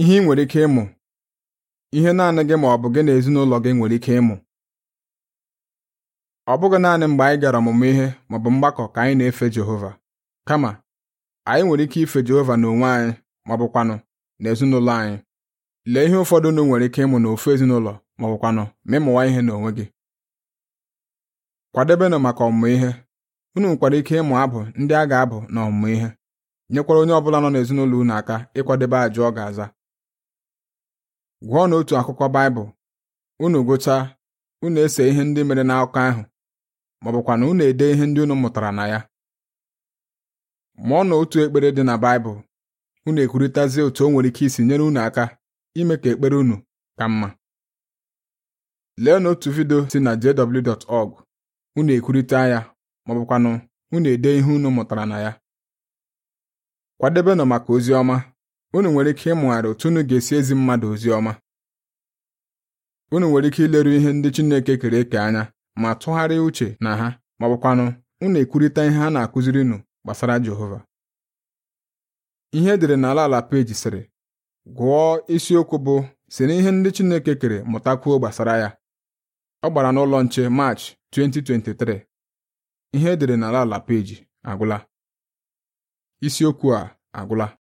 ihe ị nwere ike ịmụ ihe naanị gị ma ọ bụ gị na ezinụlọ gị nwere ike ịmụ ọ bụghị naanị mgbe anyị gara ọmụmụ ihe ma ọ bụ mgbakọ ka anyị na-efe Jehova kama anyị nwere ike ife Jehova n'onwe anyị ma ọ na ezinụlọ anyị lee ihe ụfọdụ nụ nwere ike ịmụ n'ofu ezinụlọ ma ọ ma ịmụwa ihe n'onwe gị kwadebenụ maka ọmụmụ ihe unu nwekwara ike ịmụ abụ ndị a ga-abụ na ọmụmụ ihe nyekwara onye ọ bụla nọ n'ezinụlọ unu aka ịkwadebe ajụ ọ ga-aza Gwọọ n'otu akwụkwọ Baịbụl unu gụchaa unu ese ihe ndị mere n'akụkọ ahụ ma unu ede ihe ndị unu mụtara na ya mụọ na otu ekpere dị na Baịbụl unu ekwurịtazie otu o nwere ike isi nyere unu aka ime ka ekpere unu ka mma lee n'otu vidio si na jw.org unu ekwurịta ya ma unu ede ihe unu mụtara na ya kwadebenụ maka ozi ọma unu nwere ike ịmụgharị otu unu ga-esi ezi mmadụ ozi ọma unu nwere ike ileru ihe ndị Chineke kere eke anya ma tụgharịa uche na ha ma ọ unu ekwurịta ihe a na-akụziri nụ gbasara Jehova ihe edere n'ala ala peji sịrị gụọ isiokwu bụ si na ihe ndị Chineke kere mụtakwuo gbasara ya ọ gbara n'ụlọ nche Maachị 2023 ihe edere n'ala ala peji agwụla isiokwu a agwụla